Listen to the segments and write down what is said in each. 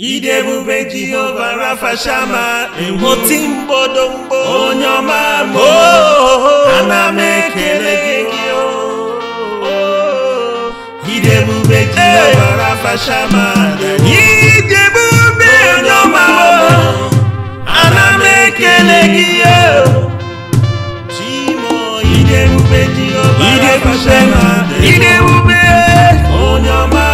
idebube jehova rafa shama ewo ti m bodo mgbo onye ọma m ana m ekele gị oh, oh. idebube jehova rafa shama idebube onye ọma m ana m ekele gị oh. chimo idebube jehova rafa shama idebube onye ọma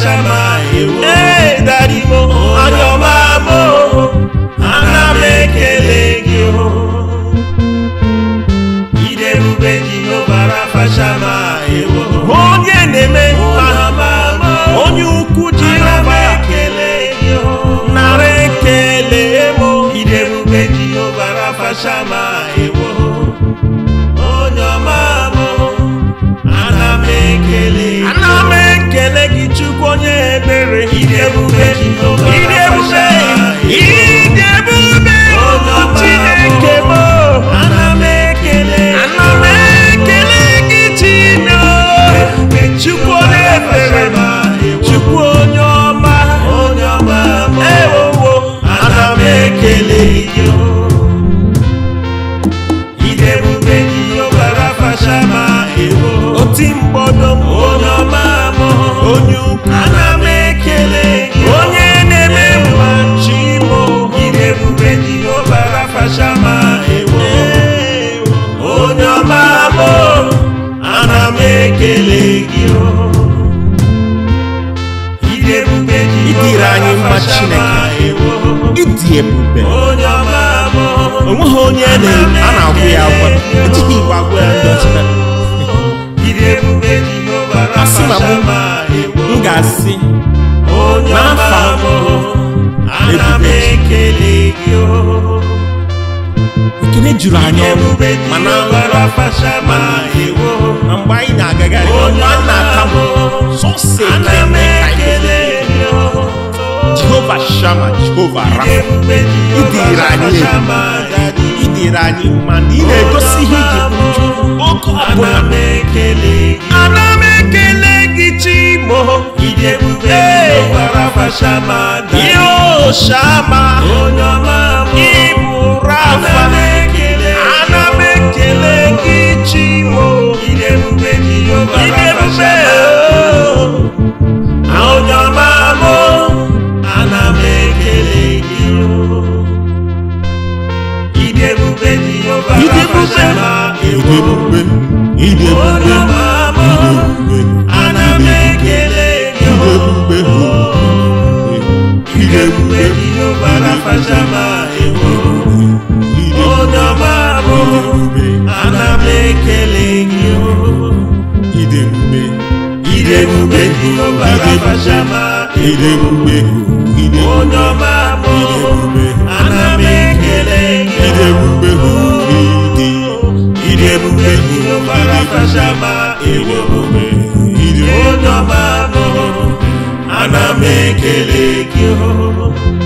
Shama Ewo. Hey, Daddy Mo, Adoma oh, Mo, Anamekele Gio. Iderube Jehovah Rafa Shama Ewo. Onye Neme, Adoma oh, Mo, Onye Ukwu Jehovah. Anamekele Gio. Narekele Mo, Iderube Jehovah Rafa Shama eu vou ver de juru anya mana mana na mgbe anyị na-agagharị ọnụ a na-atamụ sọsị ekele ka anyị jehova shama jehova rafa idere anyị idere anyị mana ị na-egosi ihe iji kwuju oge ọbụla ana m ekele gị chimo yo shama ịbụ rafa ekeleki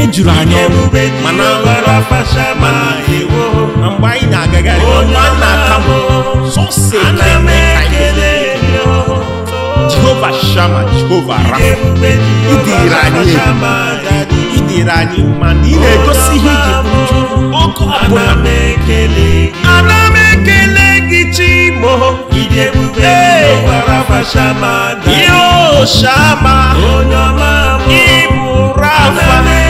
ne juru anyọ mana mgbe anyị na-agagharị ọnwa na-aka m sọsị ekele ka anyị jehova shama jehova rafa idere anyị idere anyị mana ị na-egosi ihe iji oge ọbụla ana m ekele gị chimo ihe o shama ịbụ rafa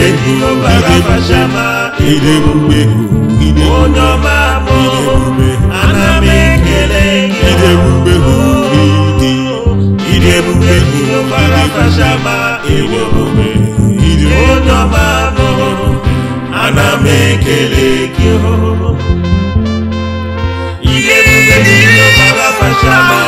Ebu Baba Shama Ebu Behu Onye ọma mụ ana m ekele Ebu Behu Ebu Behu Baba Shama Ebu Behu Onye ọma mụ ana m ekele gị Ebu Behu Baba Shama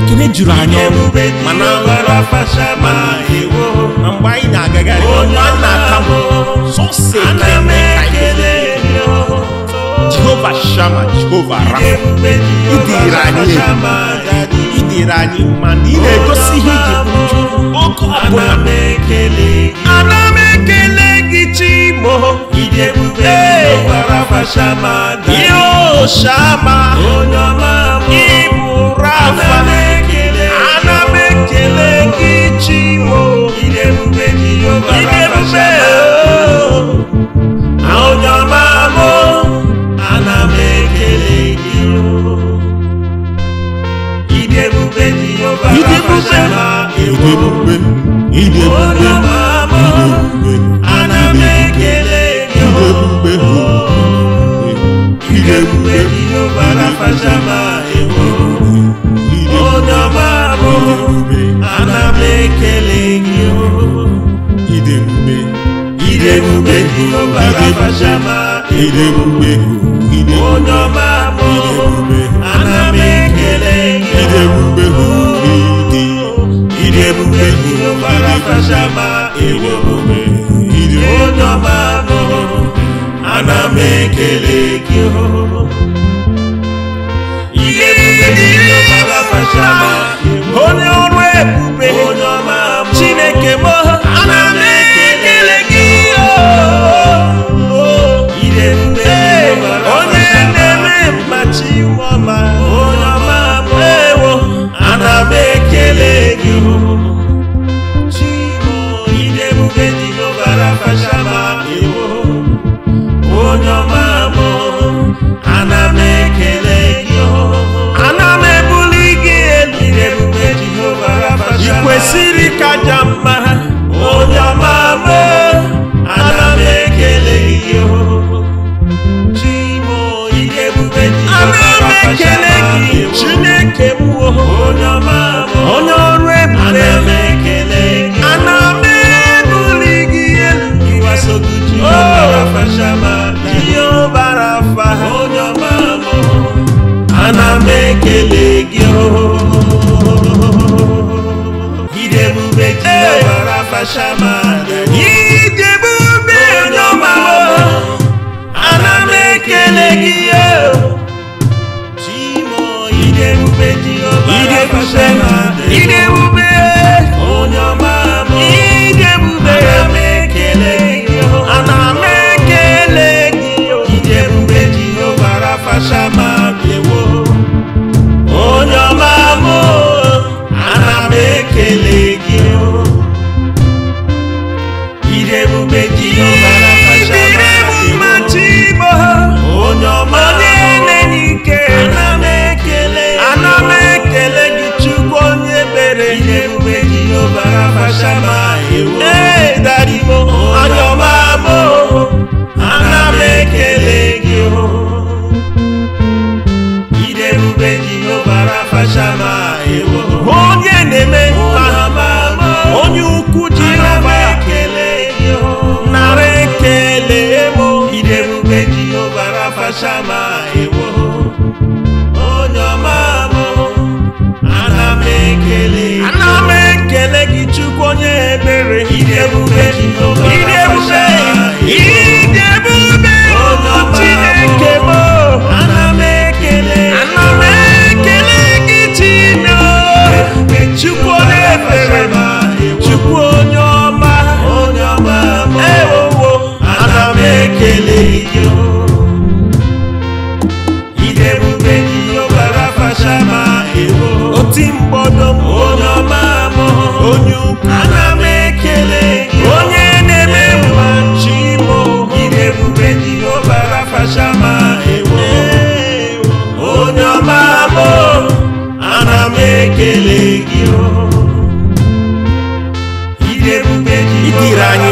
ekele juru anya mana na mgbe anyị na-agagharị na-akamụ sọsọ jehova shama jehova rafa idere anyị idere anyị ma na ị na-egosi ihe iji ọkụ ọbụla ana ekele mo. Ìdè bùbé ló Shama, fa ṣàmà dà. Yóò ṣàmà. Oyún ọmọ mo. Ìmúra fa. Anamekele. Anamekele kí jí mo. Ìdè bùbé ni yóò fara fa ṣàmà dà. Àwọn oyún ọmọ mo. Anamekele kí o. Ìdè bùbé ni yóò fara fa ekele gị idebube idebube idebube onye ọma bụ ana m ekele gị onye ọma bụ ana m ekele gị idebube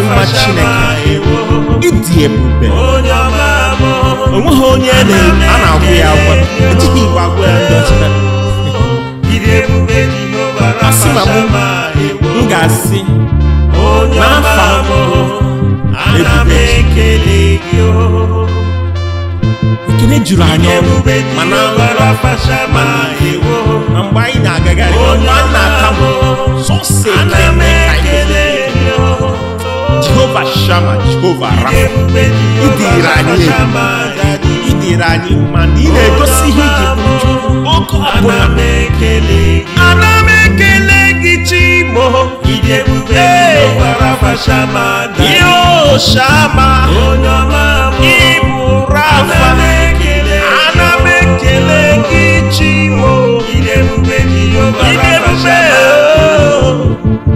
mma chineke ịdị ebube onweghị onye a na-agwụ ya agwa ejighị igwe agwụ ya ndị ọchịchị asị na m ga-asị n'afọ ebube ekele juru anyị ọrụ mana na mgbe anyị na-agagharị ọ na-ata m sọsị ekele Jehovah Shammah, Jehovah Rapha. Idirani, Idirani, Mandine, Dosihi, Oko Aboname, Aname Kele Gichimo, Jehovah Rapha Shammah, Yo Shammah, Onyama, Ibu Rafa Aname Kele Gichimo, Jehovah Rapha Shammah. Oh!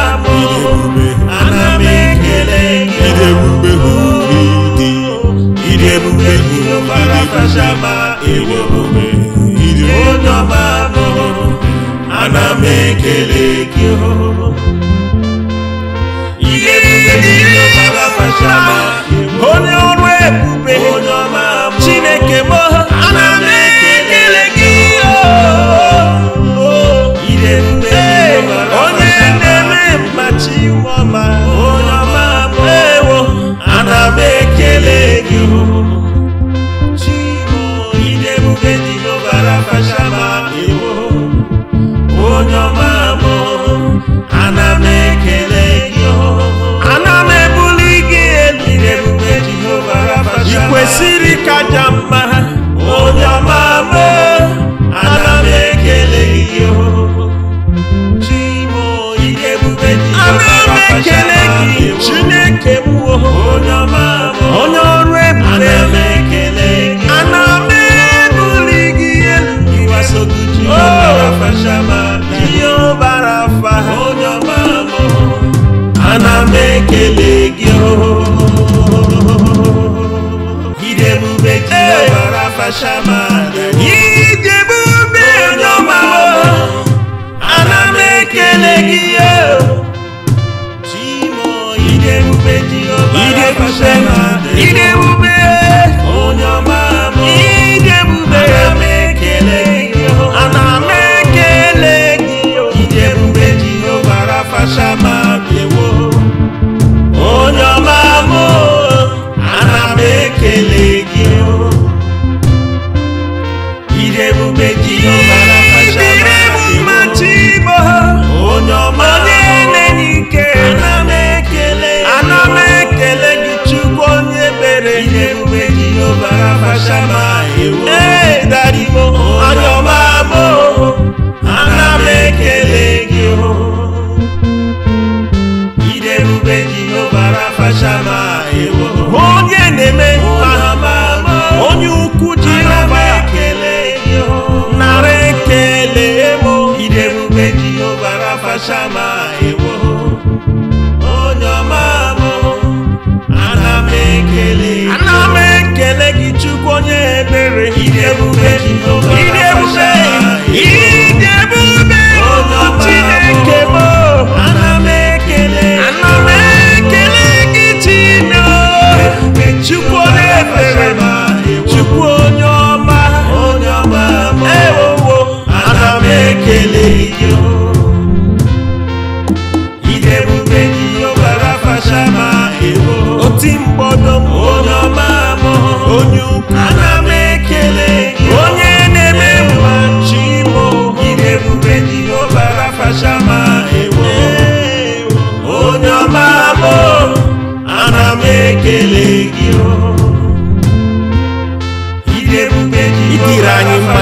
nwa chineke ịdị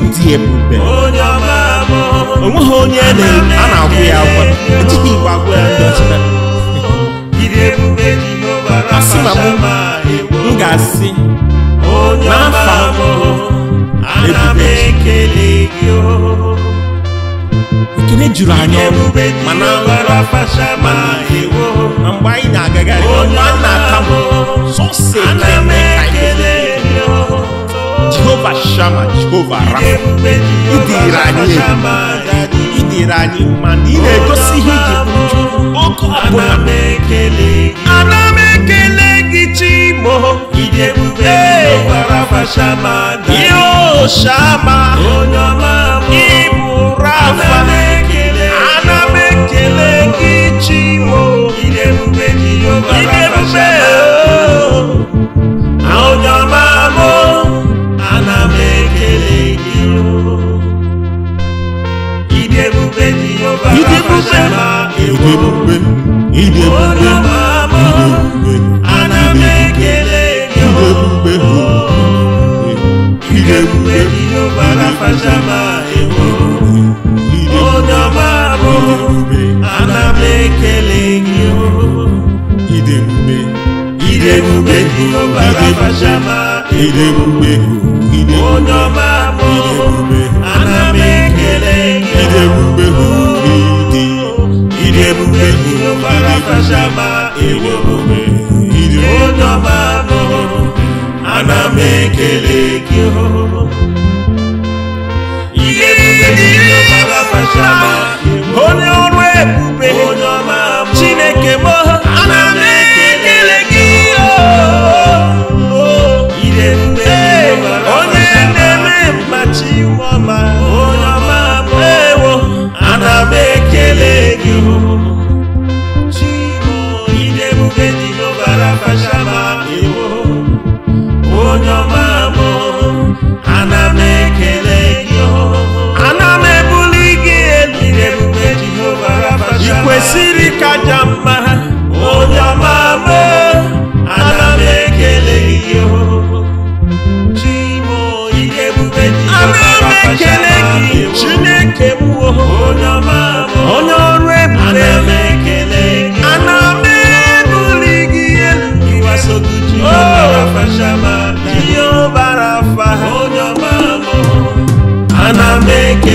ebube onweghị onye a na-agwụ ya agwa ejighị igwe agwụ ya ndị ọcha asị na m ga-asị n'afa ebube ekele juru anyị ọnụ mana na mgbe anyị na-agagharị mgbe anyị na-aka m sọsọ ekele ka anyị Jehovah Shammah, Jehovah Rapha. Idira anyị egwu, idira anyị mma na ị na-egosi ihe iji bụ uju. Okwu ọbụla. Ana m ekele gị Chimo. Ihe ebube Jehovah Rapha Shammah. Yo Shammah. Onye ọma bụ. Ịbụ Rapha. Ana m ekele gị Chimo. ìdí ebùgbé ni yóò bá rà fàṣàlà èkó ìdí ebùgbé anamekele ni ó ìdí idemube ni yóò bá rà fàṣàlà èkó odọ̀bàbò anamekele ni ó ìdí ebùgbé ìdí ebùgbé ni yóò bá rà fàṣàlà èkó odọ̀bàbò anamekele. idebube hụrụ idi onye ana onye ọrụ ebube chineke mọ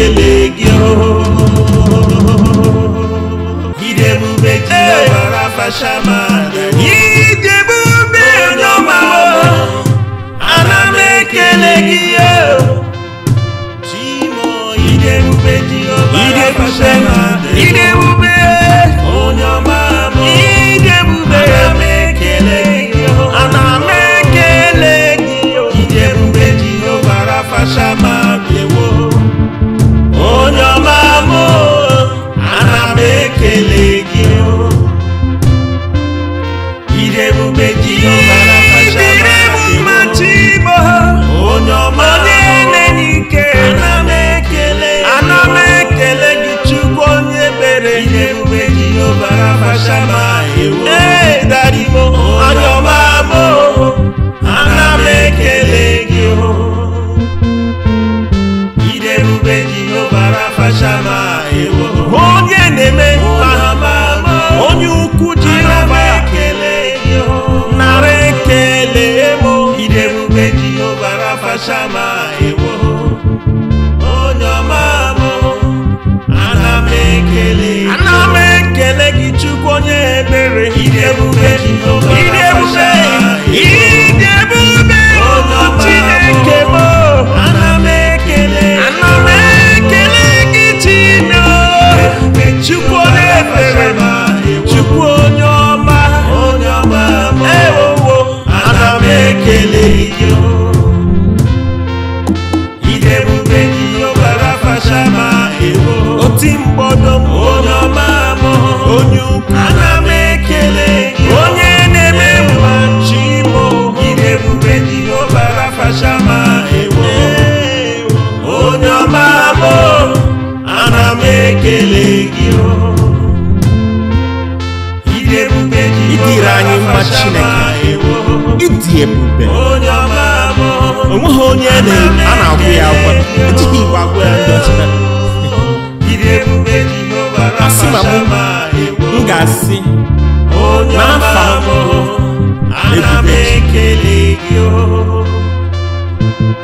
elegio idebube jiobara fashama idebube n'ọma ana m ekele gị chimo idebube jiobara fashama idebube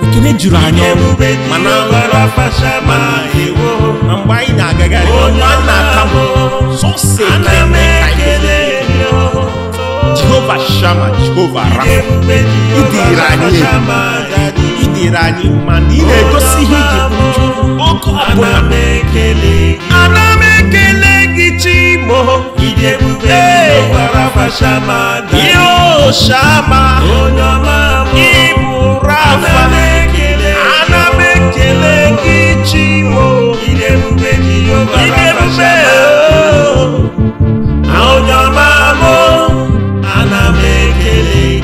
ekele juru anya mana na mgbe anyị na-agagharị na-akamụ sọsọ jehova shama jehova rafa idere anyị idere anyị ma na ị na-egosi ihe iji ọkụ ọbụla ana m ekele mo. Ìdè bùgbé ló Shama, fa ṣàmà dà. Yóò ṣàmà. Oyún ọmọ mo. Ìmúra fa. Anamekele. Anamekele kí jí mo. Ìdè bùgbé ni yóò fara fa ṣàmà dà. Àwọn oyún ọmọ mo. Anamekele kí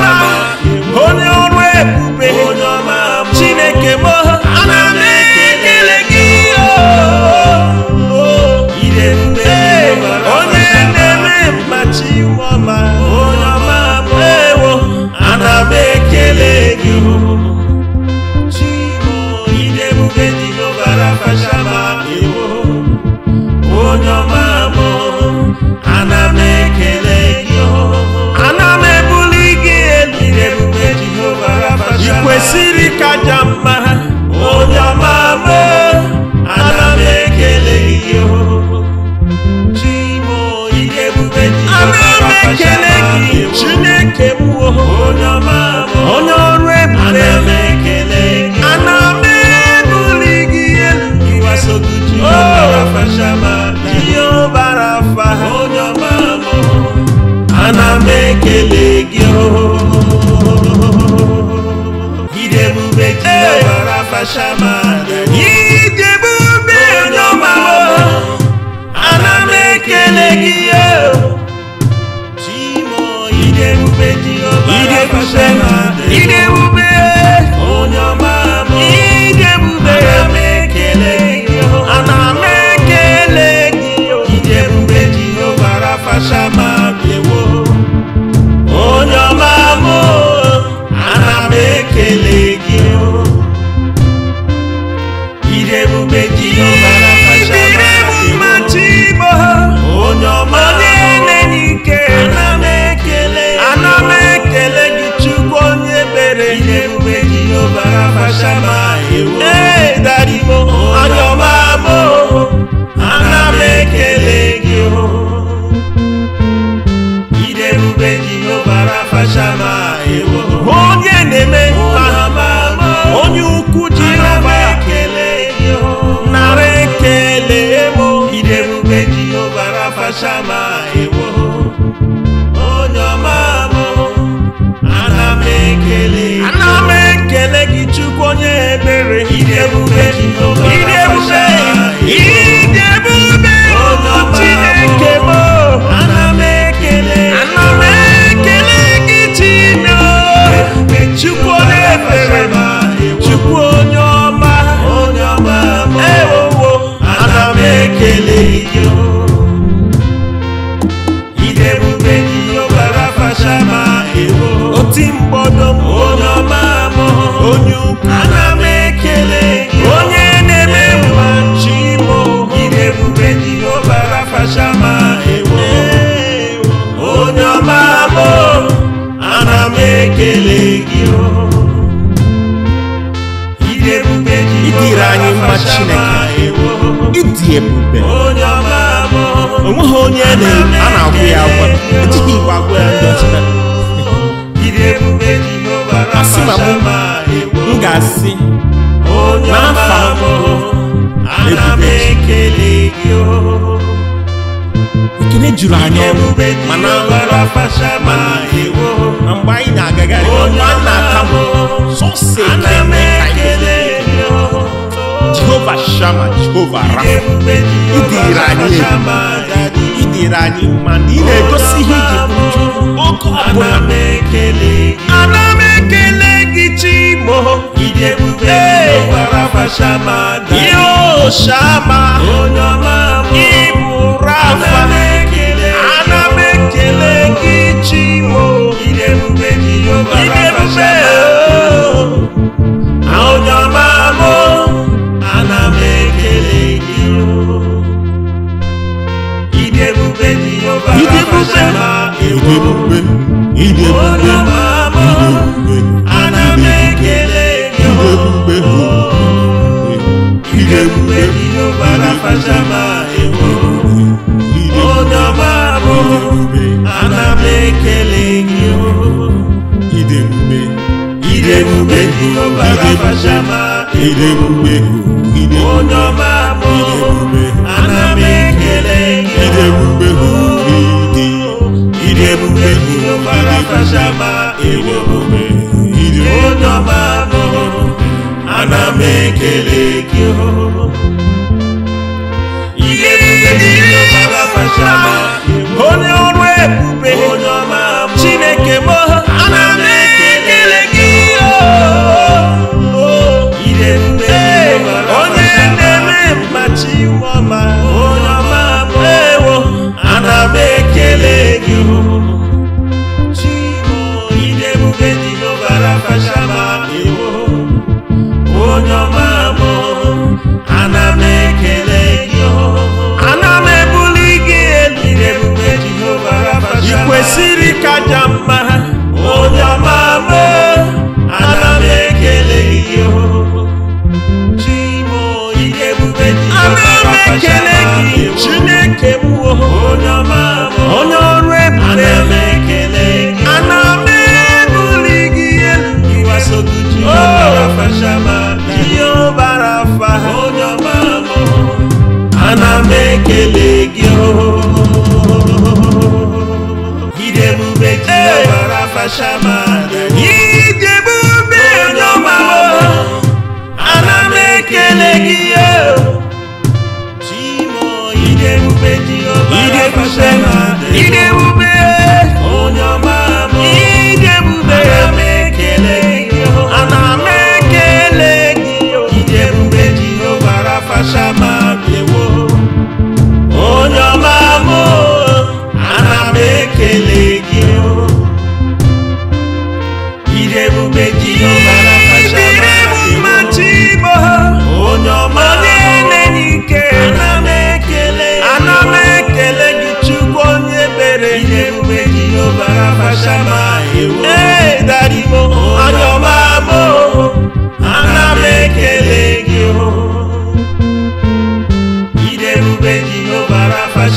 Come on. ekele gị chineke m onye ọrụ ebube ana m ebuli gị elu ihe ọbara afa ana m ekele gị gide ebube ji ọbara afa shama Kusema, Ine ga-asị ekele juru anyị mana na mgbe anyị na-agagharị na jehova shama jehova rafa ịdịrị anyị ịdịrị anyị ma ị na-egosi ihe iji ọkụ ọbụla dị ebube ụkwara fashama yóò ṣàmà onye ọma mụ ịbụ rafa ana m ekele gị chi mụ ịdị ebube dị ụkwara fashama onye ọma mụ ana m ekele gị ịdị ebube dị ụkwara fashama ịdị ebube ịdị ebube. ana m ekele gị idebube onye ọrụ ebube chineke m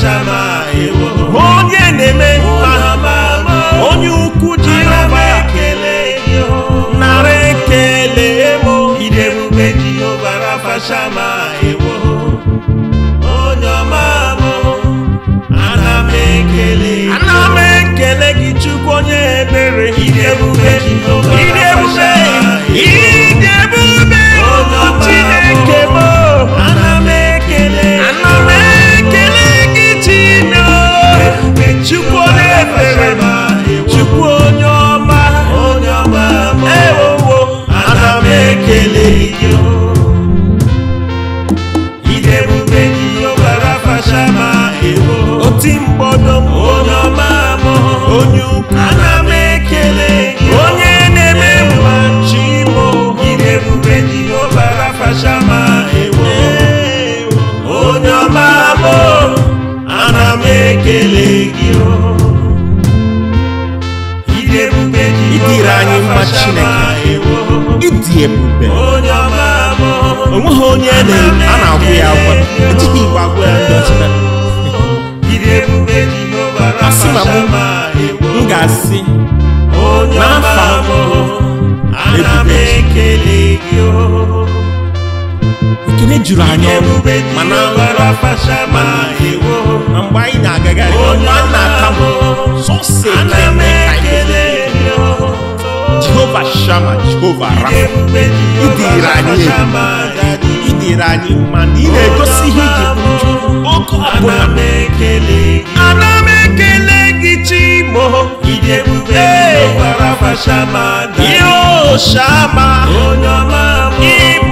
ṣàmà ìwò. ekele gị anyị mma chineke ịdị ebube onweghị onye a na-agwụ ya agwa ejighị igwe agwụ ya ndị ọcha asị na m ga-asị n'afọ ebube ekene juru anyị mana mgbe anyị na-agagharị na-akamụ sọsọ ekene ka anyị jehova shama jehova rafa idere anyị idere anyị mana ị na-egosi ihe iji bụju oke ọbụla ana m ekele gị chimo ihe o shama onye ọma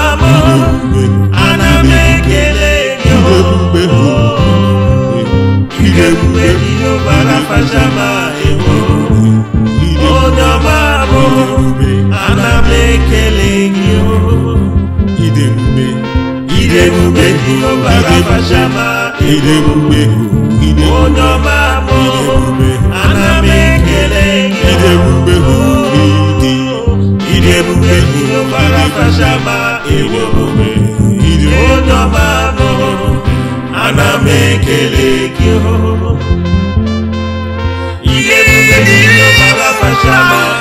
idemugbehu idemugbehu idemugbehu idemugbehu anamekele idemugbehu idi idemugbehu idemugbehu idemugbehu anamekele kiho idemugbehu idemugbehu.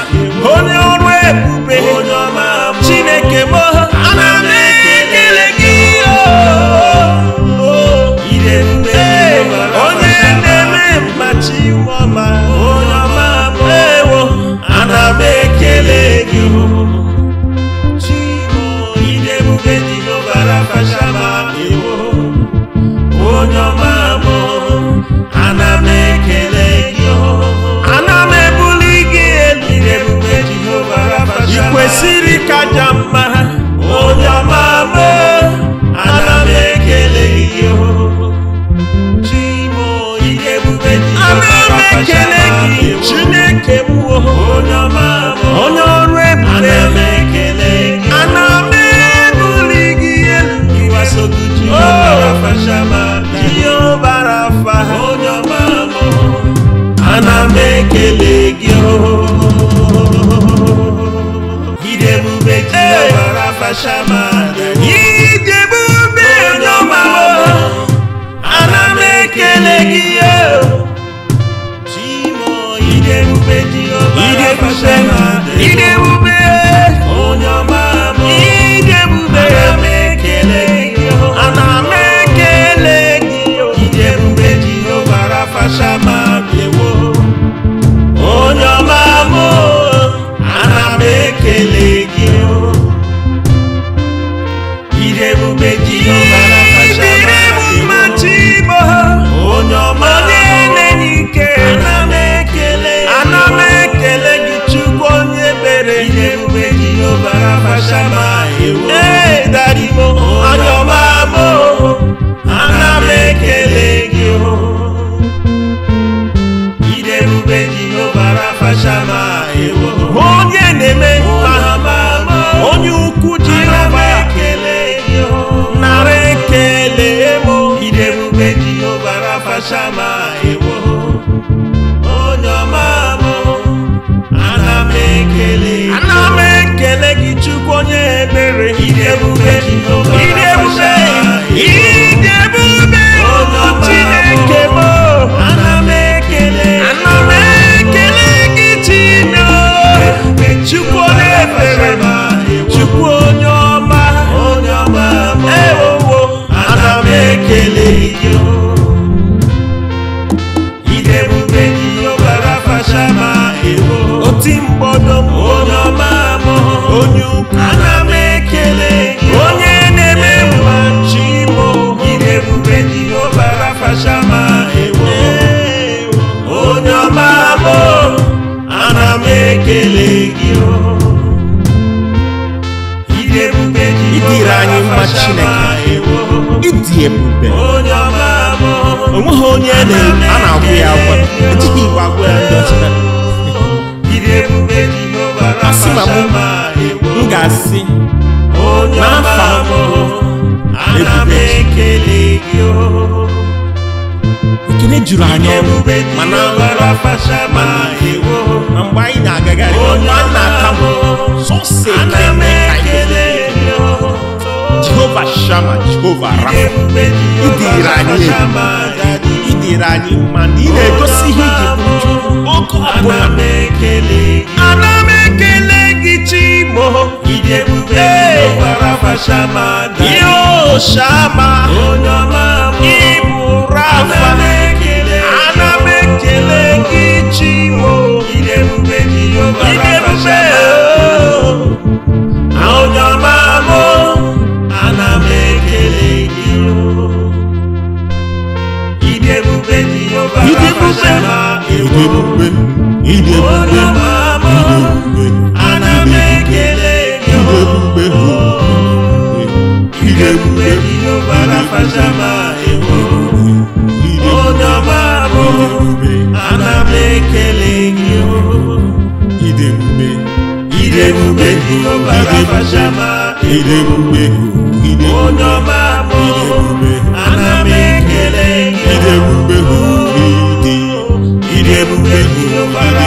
chebe asị ma mụ m ga-asị n'afọ ebube ekele juru anya na mgbe anyị na-agagharị ọ na-aka sọsọ ekele ka anyị Jehovah Shammah, Jehovah Rapha, idirani idirani ma na ị na-egosi ihe iji kwuju ọkụ ọbụla ana m ekele gị chimo yo Shama ịbụ Rafa ana m ekele gị chimo idebube ìdè bùgbé ìdè bùgbé ìdè bùgbé ìdè bùgbé anamẹ kele ìdè bùgbé ìdè bùgbé ìdè bàrà fàṣàmà ìwọ ọdọba bò anamẹ kele ìwọ ìdè bùgbé ìdè bùgbé ìdè bàrà fàṣàmà ìwọ ọdọba bò.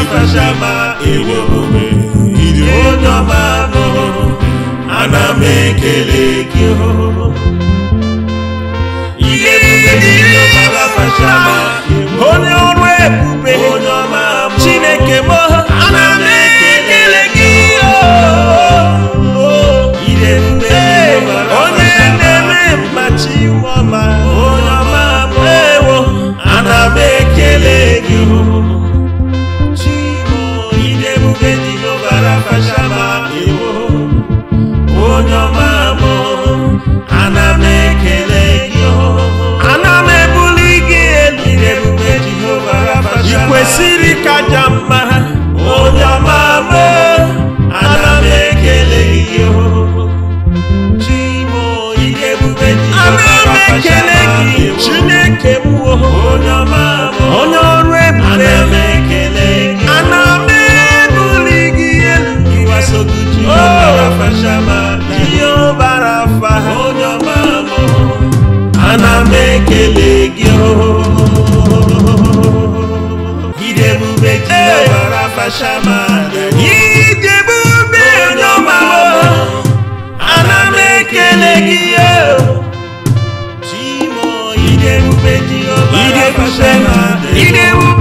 Ifashama Iwobe Idi Onoma Noho Ana mekele kiho Ide bube Idi Onoma Fashama Onye ọrụ ebube Onye ọma ijebu be n'ọma ana m ekele o, ijebu be ji ọbara ijebu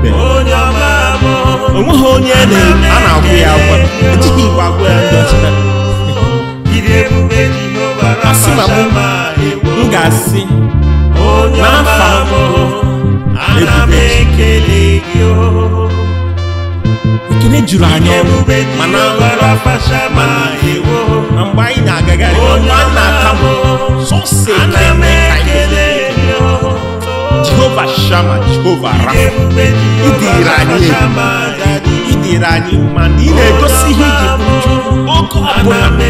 O onweghị onye a na-agwụ ya agwa ejighị igwe agwụ ya ndị ọchịcha asị na m ga-asị n'afọ ebube ekele juru anya ọrụ mana na mgbe anyị na-agagharị ọ na-ata m sọsị ekele ka anyị Jehovah Shammah, Jehovah Rapha. Idirani, Idirani, Manine, Dosihi, Oko Abona.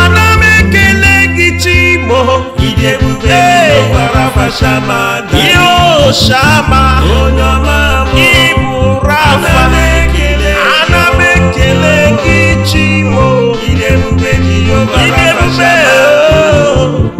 Anamekele gichimo. Idebube Jehovah Rapha Shammah. Yo Shammah. Onyama Ibu Rapha. Anamekele gichimo. Idebube Jehovah Rapha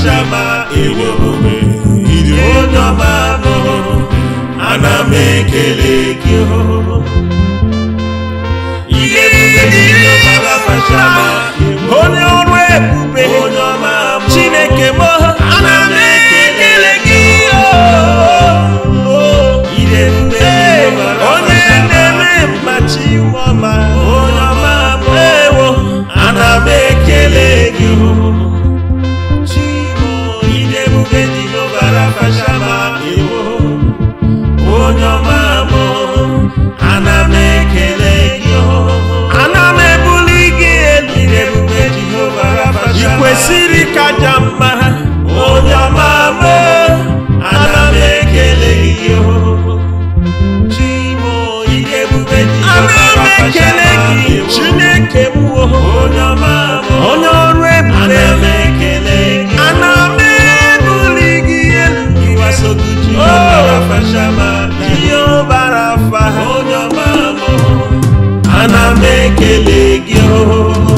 ọchama ịdị omume ịdị onye ọma bụ ana m ekele gị Oh,